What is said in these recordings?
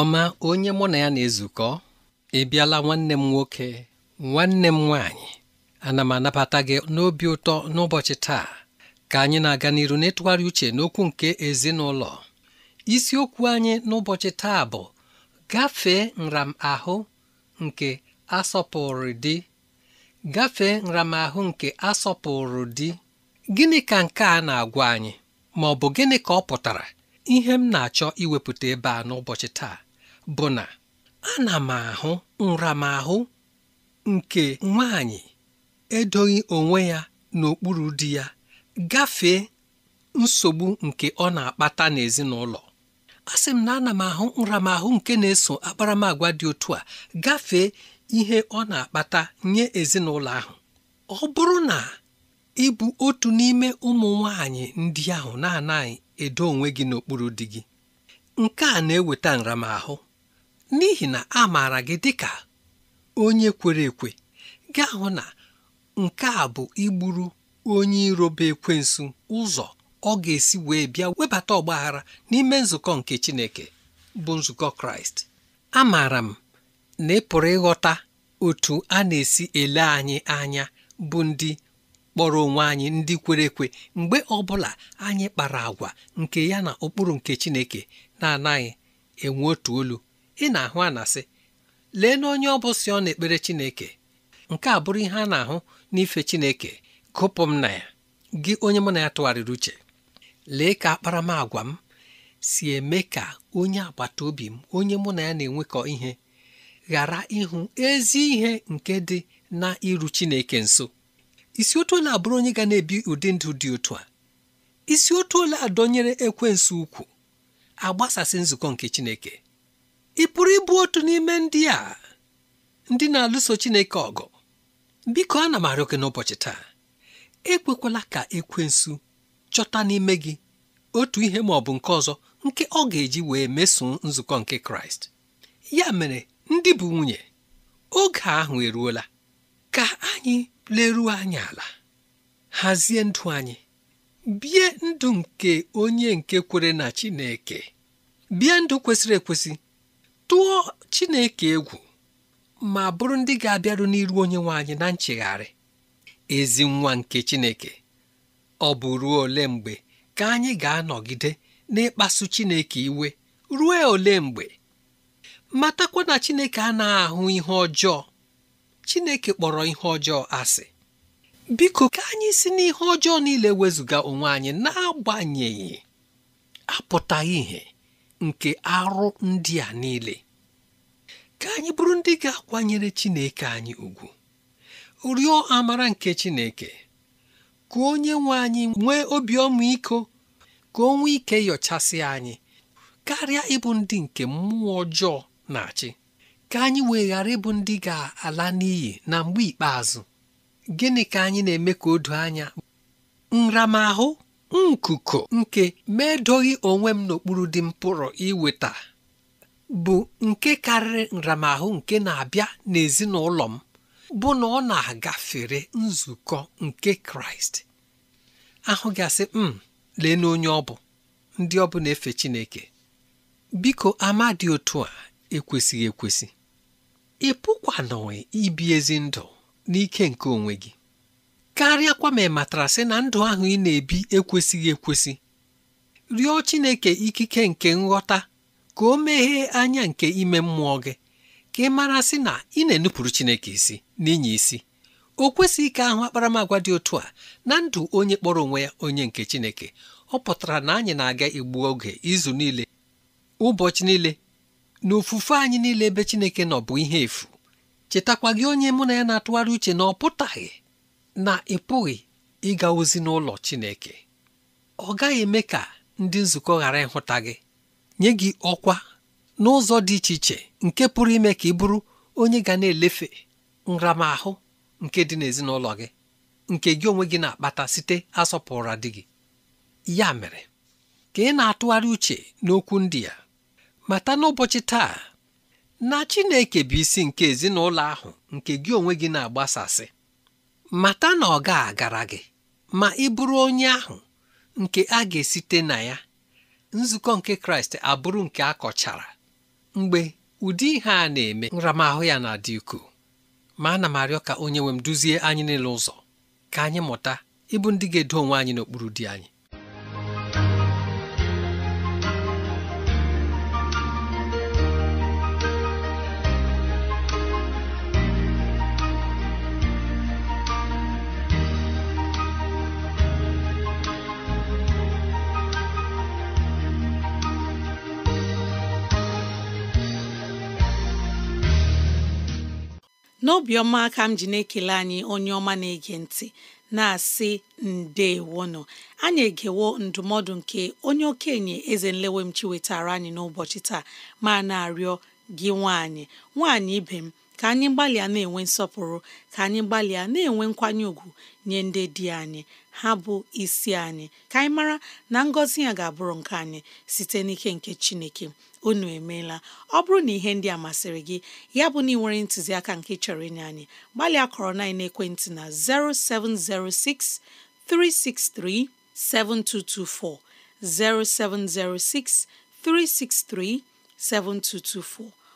ọma onye mụ na ya na-ezukọ ị bịala nwanne m nwoke nwanne m nwaanyị ana m anabata gị n'obi ụtọ n'ụbọchị taa ka anyị na-aga n'iru n'ịtụgharị uche n'okwu nke ezinụlọ isiokwu anyị n'ụbọchị taa bụ gafee nramahụ nke asọpụrụ di gafee nramahụ nke asọpụrụ di gịnị ka nke a na-agwa anyị ma ọ bụ gịnị ka ọ pụtara ihe m na-achọ iwepụta ebe a n'ụbọchị taa bụ na ana m ahụ nramahụ nke nwanyị edoghị onwe ya n'okpuru di ya gafee nsogbu nke ọ na-akpata n'ezinụlọ asị m na ana m ahụ nramahụ nke na-eso akparamagwa dị otu a gafee ihe ọ na-akpata nye ezinụlọ ahụ ọ bụrụ na ị otu n'ime ụmụ nwanyị ndị ahụ na-anaghị edo onwe gị n'okpuru di gị nke a na-eweta nramahụ n'ihi na a maara gị ka onye kwere ekwe gaa hụ na nke a bụ igburu onye irobe ekwensu ụzọ ọ ga-esi wee bịa webata ọgbaghara n'ime nzukọ nke Chineke bụ nzukọ Kraịst amaara m na ị ịghọta otu a na-esi ele anyị anya bụ ndị kpọrọ onwe anyị ndị kwere ekwe mgbe ọbụla anyị kpara agwa nke ya na ụkpụrụ nke Chineke na-anaghị enwe otu olu ị na-ahụ a na-asị lee na onye ọ bụ si ọ na-ekpere Chineke nke a bụrụ ihe a na-ahụ n'ife Chineke gụpụ m na ya gị onye mụ na ya tụgharịrị uche lee ka akparamagwa m si eme ka onye agbata obi m onye mụ na ya na-enwekọ ihe ghara ịhụ ezi ihe nke dị na iru Chineke nso isi otu ole abụrụ onye ga na-ebi ụdị ndụ dị otu a isi otu ole adọnyere ekwensu ukwu agbasasị nzukọ nke Chineke ị pụrụ ịbụ otu n'ime ndị a ndị na-alụso Chineke ọgụ biko na m arịọ n'ụbọchị taa ekwekwala ka ekwensu chọta n'ime gị otu ihe ma ọ bụ nke ọzọ nke ọ ga-eji wee mesoo nzukọ nke Kraịst ya mere ndị bụ nwunye oge ahụ eruola ka anyị leruo anyị ala hazie ndụ anyị bie ndụ nke onye nke kwere na Chineke bie ndụ kwesịrị ekwesị tụọ Chineke egwu ma bụrụ ndị ga-abịaru n'iru onye nwe anyị na nchegharị ezi nwa nke Chineke ọ bụ ruo ole mgbe ka anyị ga-anọgide n'ịkpasu Chineke iwe ruo ole mgbe matakwa na Chineke a na ahụ ihe ọjọọ Chineke kpọrọ ihe ọjọọ asị biko ka anyị si n'ihe ọjọọ niile wezụga onwe anyị na-agbanyeghị apụtaghị ihe nke arụ ndị a niile ka anyị bụrụ ndị ga-akwanyere Chineke anyị ugwu rịọ amara nke Chineke ka onye nwe anyị nwee obi ọmịiko ka o ike yọchasị anyị karịa ịbụ ndị nke mmụọ ọjọọ na-achị ka anyị wee ịbụ ndị ga-ala n'iyi na mgbe ikpeazụ gịnị ka anyị na-eme ka o anya nramahụ nkuko nke medoghị onwe m n'okpuru dị m pụrụ iweta bụ nke karịrị nramahụ nke na-abịa n'ezinụlọ m bụ na ọ na-agafere nzukọ nke kraịst ahụ gasị m hmm, lee n'onye ọ bụ ndị ọ bụ na-efe chineke biko ama dị otu a ekwesịghị ekwesị ị ibi ezi ndụ n'ike nke onwe gị karịa kwa ma ị matara sị na ndụ ahụ ị na-ebi ekwesịghị ekwesị rịọ Chineke ikike nke nghọta ka o meghee anya nke ime mmụọ gị ka ị mara sị na ị na-enupụrụ Chineke isi n'inye isi o kwesịghị ka ahụ akparamagwa dị otu a na ndụ onye kpọrọ onwe ya onye nke Chineke ọ pụtara na anyị na-aga igbu oge izu niile ụbọchị niile na ofufe anyị niile ebe Chineke nọ bụ ihe efu chetakwa gị onye mụ na ya na-atụgharị uche na ọ pụtaghị na ị pụghị ịga ozi n'ụlọ Chineke ọ gaghị eme ka ndị nzukọ ghara ịhụta gị nye gị ọkwa n'ụzọ dị iche iche nke pụrụ ime ka ị bụrụ onye ga na-elefe nramahụ nke dị n'ezinụlọ gị nke gị onwe gị na-akpata site asọpụrụ dị gị ya mere ka ị na-atụgharị uche n'okwu ndị ya mata n'ụbọchị taa na Chineke bụ isi nke ezinụlọ ahụ nke gị onwe gị na-agbasasị mata na ọ ga-agara gị ma ị bụrụ onye ahụ nke a ga-esite na ya nzukọ nke kraịst abụrụ nke a kọchara mgbe ụdị ihe a na-eme nramahụ ya na-adị ukwuu ma ana m arịọ ka onye nwe m duzie anyị n'elu ụzọ ka anyị mụta ịbụ ndị ga-edo onwe anyị n'okpuru di anyị n'obiọma ka m ji na-ekele anyị onye ọma na-ege ntị na-asị ndewonụ anyị egewo ndụmọdụ nke onye okenye eze nlewemchi wetara anyị n'ụbọchị taa ma na-arịọ gị nwaanyị nwanyị ibe m ka anyị gbalịa na-enwe nsọpụrụ ka anyị gbalịa na-enwe nkwanye ùgwù nye ndị di anyị ha bụ isi anyị ka anyị mara na ngọzi ya ga-abụrụ nke anyị site n'ike nke Chineke unu emeela ọ bụrụ na ihe ndị a masịrị gị ya bụ na ị nwere ntụziaka nke chọrọ ịnye anyị gbalịa kọrọ na ekwentị na 0706 363 7224 0706 363 7224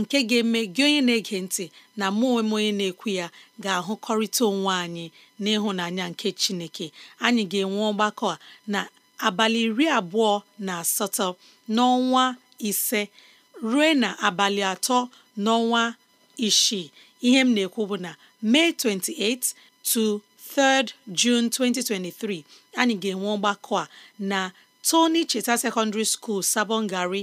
nke ga-eme gị onye na-ege ntị na mụ onwe onye na-ekwu ya ga-ahụkọrịta onwe anyị n'ịhụnanya nke Chineke anyị ga-enwe ọgbakọ a na abalị iri abụọ na asatọ n'ọnwa ise ruo na abalị atọ n'ọnwa isii ihe m na-ekwu bụ na May 28 to 3rd 2023 anyị ga-enwe ọgbakọ a na Tony Cheta Secondary School Sabongari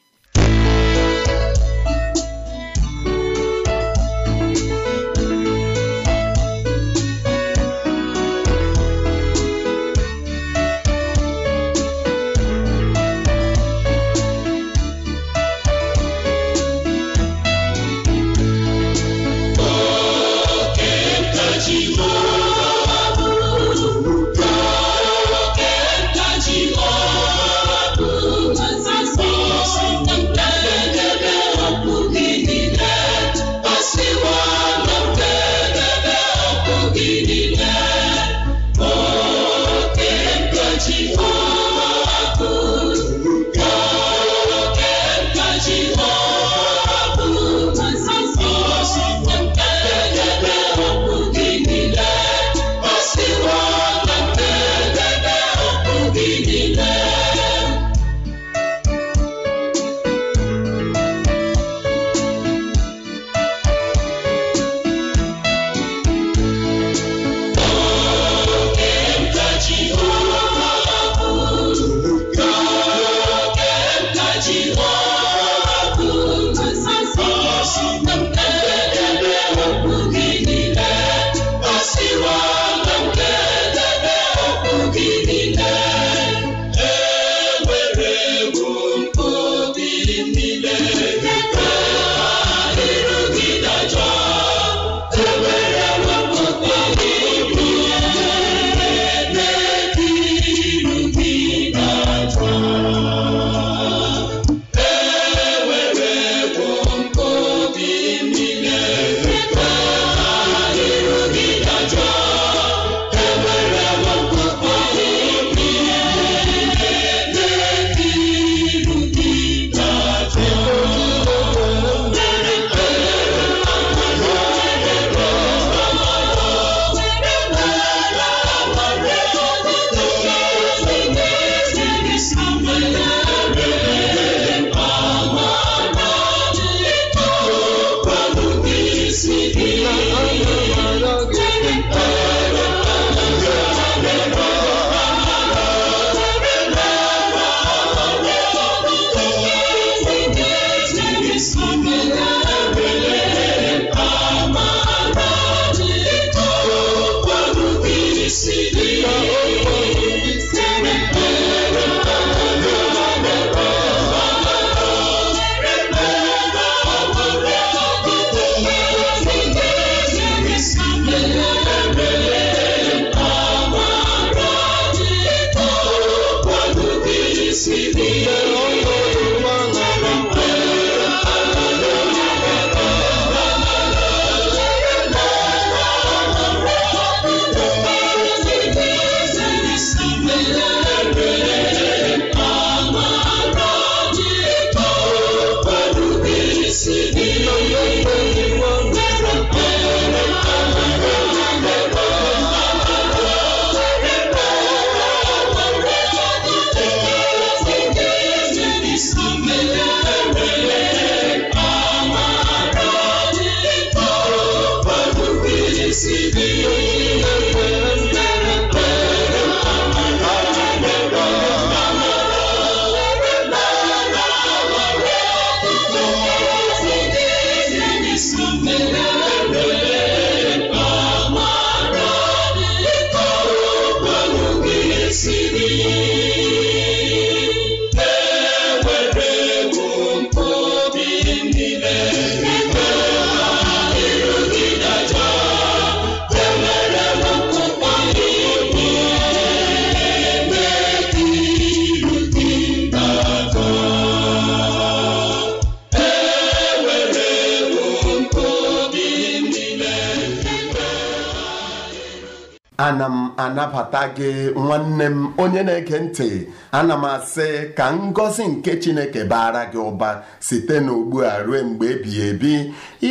ana m anabata gị nwanne m onye na-ege ntị ana m asị ka ngọzi nke Chineke baara gị ụba site n'ugbu a ruo mgbe ebighị ebi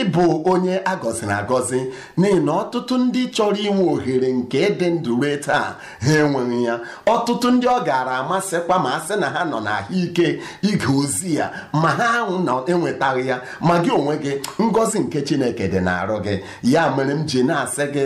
ịbụ onye agọziri agọzi n'ihi na ọtụtụ ndị chọrọ inwe ohere nke ịdị ndụ taa ha enweghị ya ọtụtụ ndị ọ gaara amasịkwa ma a sị na ha nọ n'ahụike ige ozi ya ma ha na-enwetaghị ya ma gị onwe gị ngọzi nke Chineke dị n'arụ gị ya mere m ji na-asị gị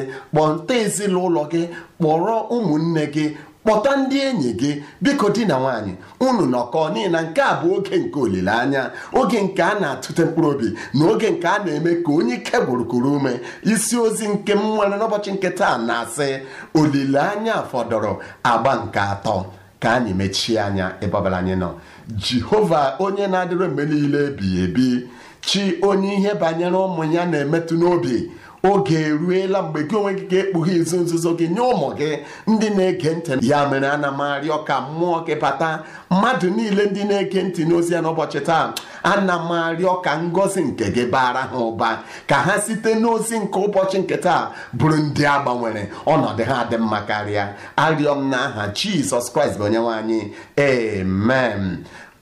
nta ezinụlọ gị gị kpọrọ ụmụnne gị kpọta ndị enyi gị biko di na nwaanyị unu nọkọọ n'ihi na nke a bụ oge nke olileanya oge nke a na-atụte mkpụrụ obi na oge nke a na-eme ka onye ike gburugburu ume isi ozi nke m nwere n'ụbọchị nke taa na-asị olileanya fọdụrụ agba nke atọ ka anyị mechie anya ebe anyị nọ jehova onye na-adịrị mgbe niile ebighị ebi chi onye ihe banyere ụmụ ya na-emetụ n'obi oge eruela mgbe gị onwe gị ga-ekpughe izu nzuzo gị nye ụmụ gị ndị na-ege ntị ya mere ana m arịọ ka mmụọ gị bata mmadụ niile ndị na-ege ntị n'ozi ya n'ụbọchị taa ana m arịọ ka ngọzi nke gị bara ha ụba ka ha site n'ozi nke ụbọchị nke taa bụrụ ndị a gbanwere ọnọdụ ha dị mma karịa arịọ m aha Jizọs Kraịst bụ onye anyị amen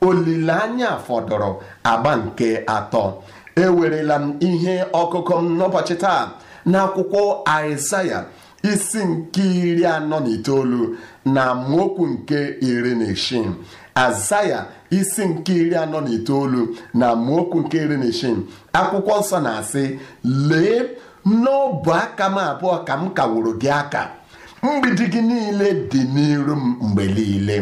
olileanya fọdụrụ agba nke atọ ewerela m ihe ọkụkọ m n'ụbọchị taa n'akwụkwọ Aịzaya isi nke iri anọ na itoolu na mokwu nke iri na isii azaya isi nke iri anọ na itoolu na mokwu nke iri na isi akwụkwọ nsọ na-asị lee n'ọbụ aka m abụọ ka m kawụrụ gị aka mgbidi gị niile dị n'iru m mgbe niile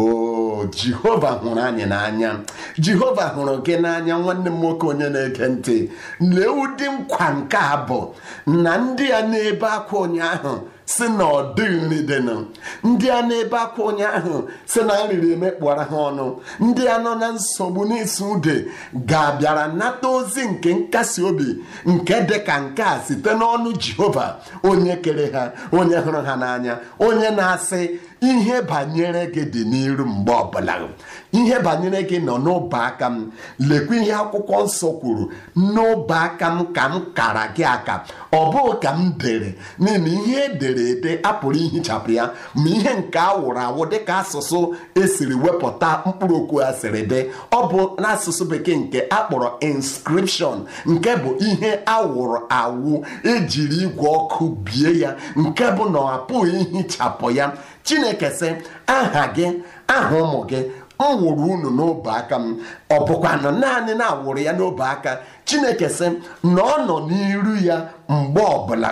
o jehova hụrụ anyị n'anya jehova hụrụ gị n'anya nwanne m nwoke onye na-ege ntị lee ụdị nkwa nke a bụ na ndị a na-ebe akwa ụnyaahụ si na ọ dịghị nri dịnụ ndị a na-ebe akwa ụnyaahụ si na nriri emekpụara ha ọnụ ndị a nọ na nsogbu n'isi ude ga-abịara nata ozi nke nkasi obi nke dị ka nke a site n'ọnụ jehova onye kere ha onye hụrụ ha n'anya onye na-asị ihe banyere gị dị n'iru mgbe ọbụla ihe banyere gị nọ n'ọba aka m lekwa ihe akwụkwọ nsọ kwuru n'ọba aka m ka m kara gị aka ọ bụghị ka m dere n'ihi ihe edere ede apụrụ ihichapụ ya ma ihe nke awụrụ awụ dịka asụsụ esiri wepụta mkpụrụ okwu asịrị dị ọ bụ n'asụsụ bekee nke akpọrọ inskripshọn nke bụ ihe awụrụ awụ ejiri igwe ọkụ bie ya nke bụ na ọ apụghị ihichapụ ya chineke sị aha gị aha ụmụ gị m wụrụ unu n'obe aka m ọ bụkwa na naanị na-awụrụ ya n'obe aka chineke sị na ọ nọ n'iru ya mgbe ọbụla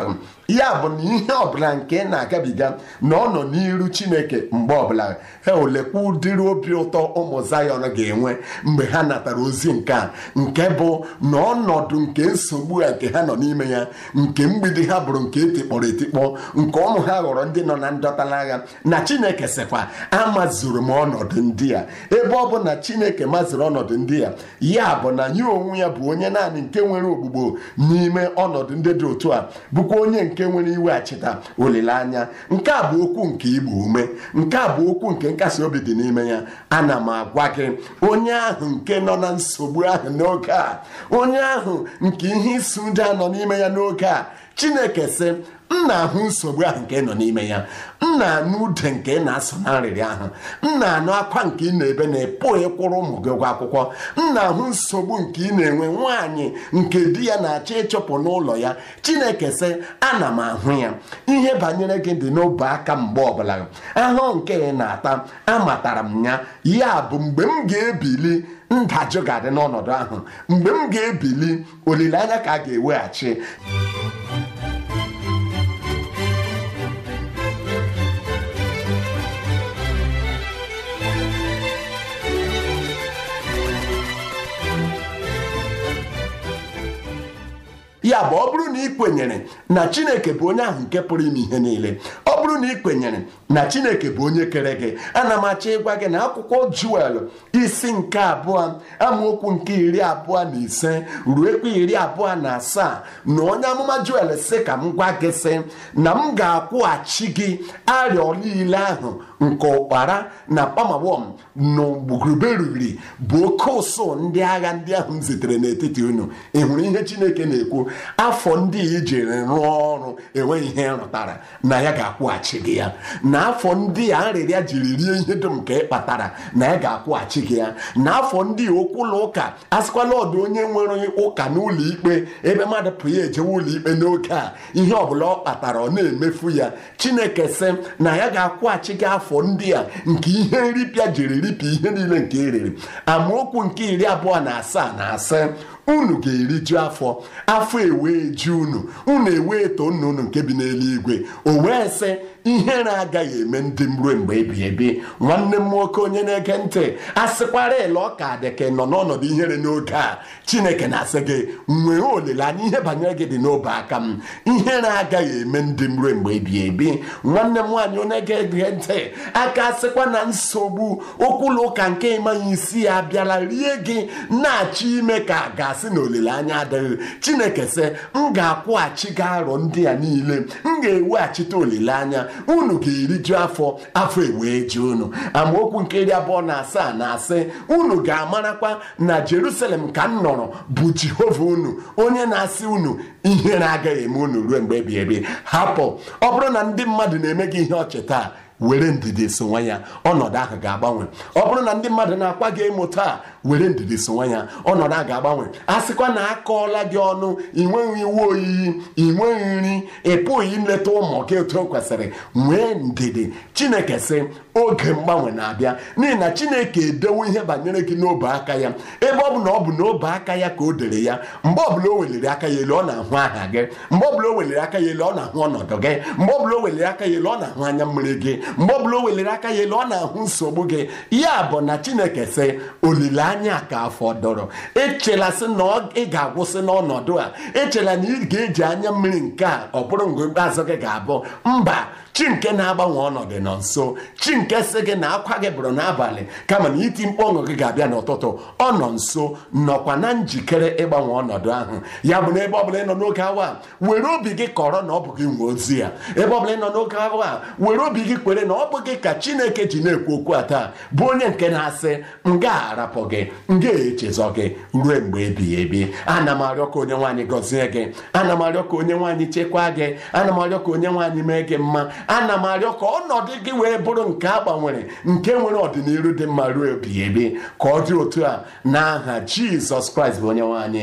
ya bụ na ihe ọbụla nke na-agabiga na ọ nọ n'iru chineke mgbe ọbụla ha e olekwa ụdịrị obi ụtọ ụmụ zayọn ga-enwe mgbe ha natara ozi nke a nke bụ na ọnọdụ nke nsogbu a nke ha nọ n'ime ya nke mgbidi ha bụrụ nke etikpọrọ etikpọ nke ụmụ ha ghọrọ ndị nọ na ndọtala agha na chineke sịkwa amazuru m ọnọdụ ndị a ebe ọ bụ na chineke maziri ọnọdụ ndị a ya bụ na ya onwe ya bụ onye naanị nke nwere ogbugbo n'ime ọnọdụ ndị dị otu a bụkwa onye nke nke nwere cheta olileanya nke a bụ okwu nke igbo ume nke a bụ okwu nke nkasi obi dị n'ime ya ana m agwa gị onye ahụ nke nọ na nsogbu ahụ n'oge a onye ahụ nke ihe isi ụja nọ n'ime ya n'oge a Chineke sị m na-ahụ nsogbu ahụ nke nọ n'ime ya m na-anụ ude nke na-asụ na nrịrị ahụ m na-anụ akwa nke ị na-ebe na epụ kwụrụ ụmụ gị ụgwọ akwụkwọ m na-ahụ nsogbu nke ị na-enwe nwaanyị nke di ya na-achọ ịchụpụ n'ụlọ ya chineke sị ana m ahụ ya ihe banyere gị dị n'obe aka mgbe ọbụla ahụ nke ị na-ata amatara m ya ya bụ mgbe m ga-ebili ndajụ ga-adị n'ọnọdụ ahụ mgbe m ga-ebili olileanya ka a ga-eweghachi ya bụ ọ bụrụ na ị kwenyere na chineke bụ onye ahụ nke pụrụ ime ihe niile ọ bụrụ na ị kwenyere na chineke bụ onye kere gị ana m achọ ịgwa gị na akwụkwọ juel isi nke abụọ amaokwu nke iri abụọ na ise ruekwa iri abụọ na asaa na onye amụma juel sị ka m gwa gị sị na m ga-akwụghachi gị arịọ niile ahụ nke ụkpara na pamawom n'ugbugurube riri bụ oke ụsụ ndị agha ndị ahụ m zitere n'etiti unu ị hụrụ ihe chineke na-ekwu afọ ndị ijiri rụọ ọrụ enweghị ihe rụtara na ya ga-akwụghachi gị ya na afọ ndị a jiri rie ihe dum ka ị kpatara na ya ga-akwụghachi gị ya na afọ ndị okwu ụlọ ụka asịkwala ọdụ onye nwere ụka n'ụlọ ikpe ebe mmadụ pụrụ ya ejewe ụlọikpe ikpe n'oge a ihe ọ bụla ọ kpatara ọ na-emefu ya chineke sị na ya ga-akwụghachi gị afọ afọ ndị a nke ihe nripịa jiri ripịa ihe niile nke e eriri amaokwu nke iri abụọ na asaa na asaa unu ga-eriju afọ afọ ewee ji unu unu ewee eto nnụnụ nke bi n'eluigwe o wee sị ihe na-agaghị eme ndị m ruo mgbe ebi ebi nwanne m nwoke onye na-ege ntị asịkwara ele ọka adịke nọ n'ọnọdụ ihere n'oge a chineke na-asị gị nwee olileanya ihe banyere gị dị n'obe aka m ihe na-agaghị eme ndị m ruo mgbe ebi ebi nwanne m nwaanyị onye ga-ege ntị aka asịkwa na nsogbu ụkwụlụ ụka nke ịmanya isi ya bịara rie gị na-achọ ime ka ga-asị na olileanya adịghị chineke sị m ga-akwụghachi gị arọ ndị a niile m ga-eweghachite olileanya unu ga-eriju afọ afọ ewee ji unu amaokwu nke iri abụọ na asaa na asị unu ga-amarakwa na Jerusalem ka m nọrọ bụ Jehova unu onye na-asị unu ihe na-agaghị eme unu ruo mgbe ebi ebi hapụ ọ bụrụ na ndị mmadụ na-eme gị ihe ọchị taa were ndidi sonwa ya ọnọdụ ahụ ga-agbanwe ọ bụrụ na ndị mmadụ na-akwa gị emo taa were ndidi sonwa ya ọnọdụ ahụ ga-agbanwe a sịkwa na akọọla gị ọnụ ị nweghị iwe oyiyi ị nri ị ileta ụmụ gị etu o kwesịrị nwee ndidi chineke sị oge mgbanwe na-abịa n'ihi na chineke edewo ihe banyere gị n'obe aka ya ebe ọ bụ na ọ bụ n'obe aka ya ka o dere ya mgbe ọbụla o weliri aka ya elu ọ na-ahụ aha gị mgbe ọbụla o weliri aka ya elu ọ na-ahụ ọnọdụ gị mgbe ọbụla o weliri aka ya elu ọ na-ahụ anya mmiri gị mgbe ọbụla o welere aka ya elu ọ na-ahụ nsogbu gị ya bụ na chineke sị olileanya ka fọdụrụ sị na ị ga-agwụsị n'ọnọdụ a echela na ị ga-eji anya mmiri nke a ọ bụrụ mgbe ikpeazụ gị ga-abụ mba chi nke na-agbanwe ọnọdụ nọ nso chi nke si gị na akwa gị bụrụ n'abalị kama na iti mkpu gị ga-abịa n'ụtụtụ ọ nọ nso nọkwa na njikere ịgbanwe ọnọdụ ahụ ya bụ na ebe ọbụla ị nọ n'oge awa were obi gị kọrọ na ọ bụ gị nwe ozi ya ebe ọbụla ị nọ n'oge awa were obi gị kwere na ọ bụ gị ka chineke ji na-ekwu okwu a taa bụ onye nke na-asị m ga-arapụ gị m ga-echezọ gị ruo mgbe ebighị ebi ana m arịọ ka onye nwaanyị gọzie gị ana m arịọ ka onye nwaanyị chekwaa gị ana m arịọ ka onye nwaanyị mee gị mma ana m arịọ ka ọnọdụ gị wee bụrụ nke a gbanwere nke nwere ọdịnihu dị mma ruo ebighị ebi ka ọ dị otu a n'aha Jizọs Kraịst bụ onye nwanyị.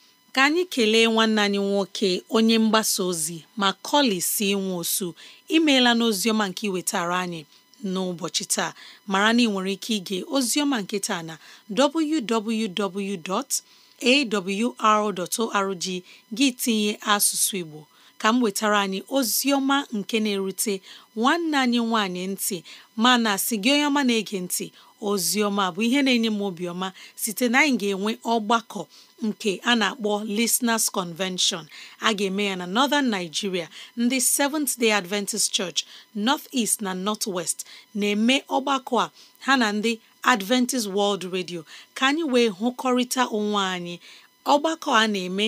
ka anyị kelee nwanne anyị nwoke onye mgbasa ozi ma si si osu imeela n'oziọma nke iwetara anyị n'ụbọchị taa mara na ị nwere ike ige ozioma nke taa na www.awr.org gị tinye asụsụ Igbo ka m wetara anyị Ozioma nke na-erute nwanne anyị nwanyị ntị mana si gị onye ọma na-ege ntị Ozioma bụ ihe na-enye m obiọma site na anyị ga-enwe ọgbakọ nke a na-akpọ Listeners Convention a ga-eme ya na Northern Nigeria ndị Seventh Day Adventist Church North East na North West na-eme ọgbakọ a ha na ndị Adventist World Radio ka anyị wee hụkọrịta onwe anyị ọgbakọ a na-eme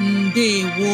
ndewo